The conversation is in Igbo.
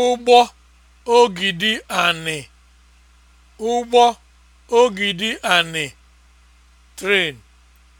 ụgbọ ogidi anị ụgbọ ogidi anị (train)